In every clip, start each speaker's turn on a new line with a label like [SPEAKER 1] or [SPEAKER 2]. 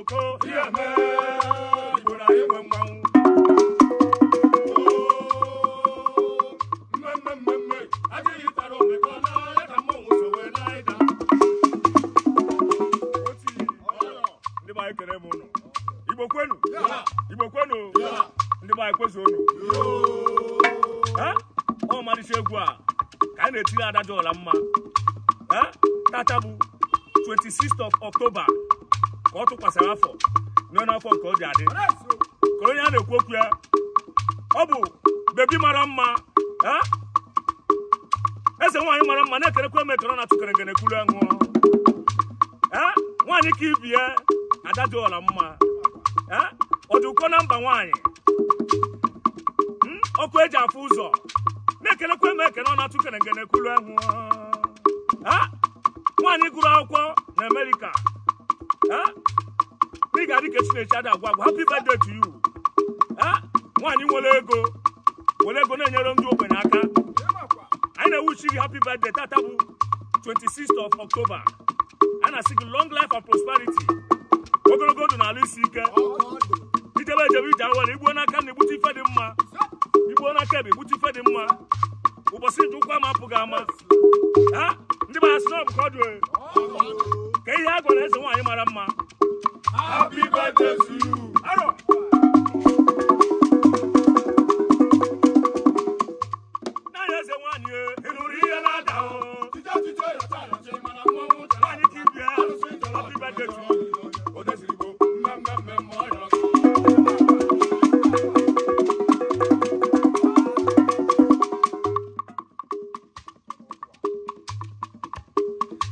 [SPEAKER 1] Oh, adájọ́ ọ̀la mma tata bu twenty sixth of October ka ọ tụkwasịrị afọ nọ n'afọ nke obi adị kụrụ onye a na-ekwu okwu ya ọ bụ bebi mara mma eze nwaanyị mara mma na-ekerekwa m ekere na tụkere ngene kwuru ṅụọ nwaanyị ka ibi ya dị ọla mma ọ ụkọ na mba nwaanyị hmm? ọkụ eji afụ ụzọ na-ekerekwa m ekere na tụkere ngene kwuru ṅụọ nwaanyị gụrụ akwụkwọ na Amerịka ị ga-adị ka Chineche ada agwa agwa happy birthday to you ah! nwaanyị nwere ego nwere ego na-enyere ndị ogbenye aka anyị na-ewuchi gị happy birthday tata bụ 26th of October a na-asị gị long life and prosperity ogologo ndụ na isi ike idebe ejebe ije awere igbuo n'aka na igbute ife dị mma igbuo n'aka ebe igbute ife dị mma ụbọchị nje ụkwụ ama apụghị ama ah! ndị mara sị na ọ bụ dị gwara eze nwaanyị mara mma happy birthday to you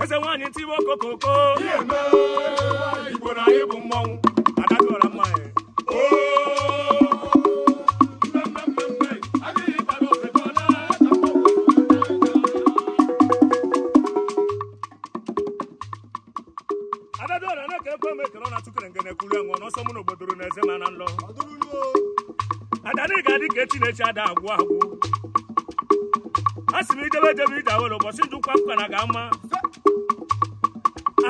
[SPEAKER 1] eze nwaanyị ntiwe okokoko igbo na anyị bụ mmọnwụ adadị ọra mmanya adadịọra na-eke ekwe m ekele na tụkere ngene kwuru enwe n'ọsọ mụ n'obodo na eze ma na nlọ adanị ga-adị ka echi na-echi ada agwụ agwụ a sị m idebe ejebe ije awere ụbọchị njikwa mkpa na ga-ama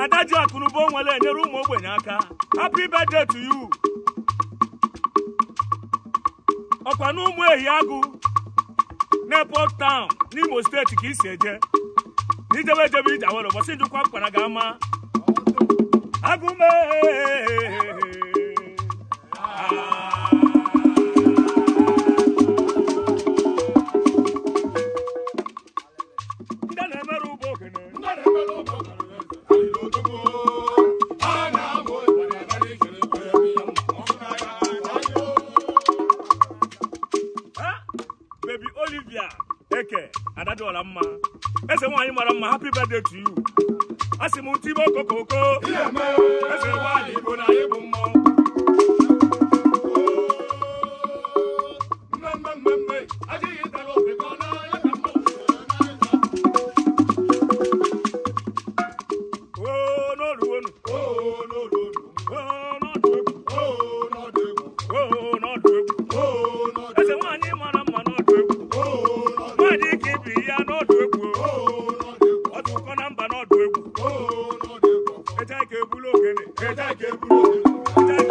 [SPEAKER 1] ada ji akụnụba onwere enyere ụmụ ogbenye aka happy birthday to you ọkwa na ụmụ ehi agụ na Town n'Imo steeti ka isi eje n'ijewe ejebe ije awere ụbọchị njikwa mkpara ga-ama agụme keke adadịọla mma eze nwaanyị mara mma happy birthday to you asị m ntụ ibe okokoko eze nwaanyị bụ na anyị bụ mmọnwụ ebulu ogene ede oge ga-eburu ndị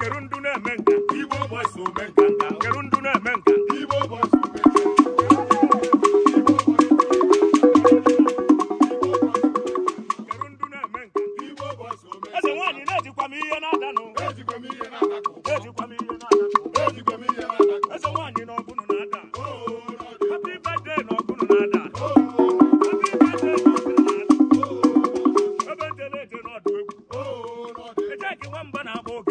[SPEAKER 1] kedu ndụ na-eme nka igbo gbasa ome banana boat.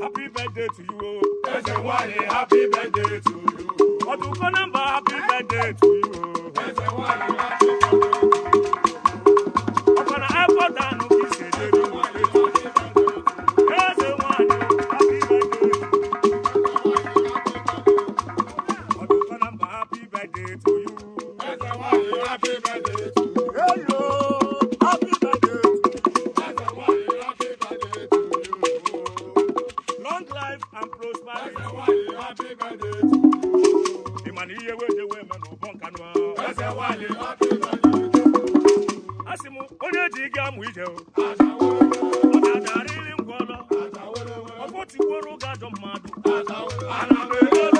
[SPEAKER 1] happy birthday to you ẹsẹ̀ wá happy birthday to you. ọdún kan nọ́mbà happy birthday to you ẹsẹ̀ wá happy birthday to you. ị ma na ihe weje wee me n'ụbọ nkanụ a sị m onye ji gị amụ ije ọ ga-adarịrị ngwa ọlọ ọkpọtikworo ụga ajọ mmadụ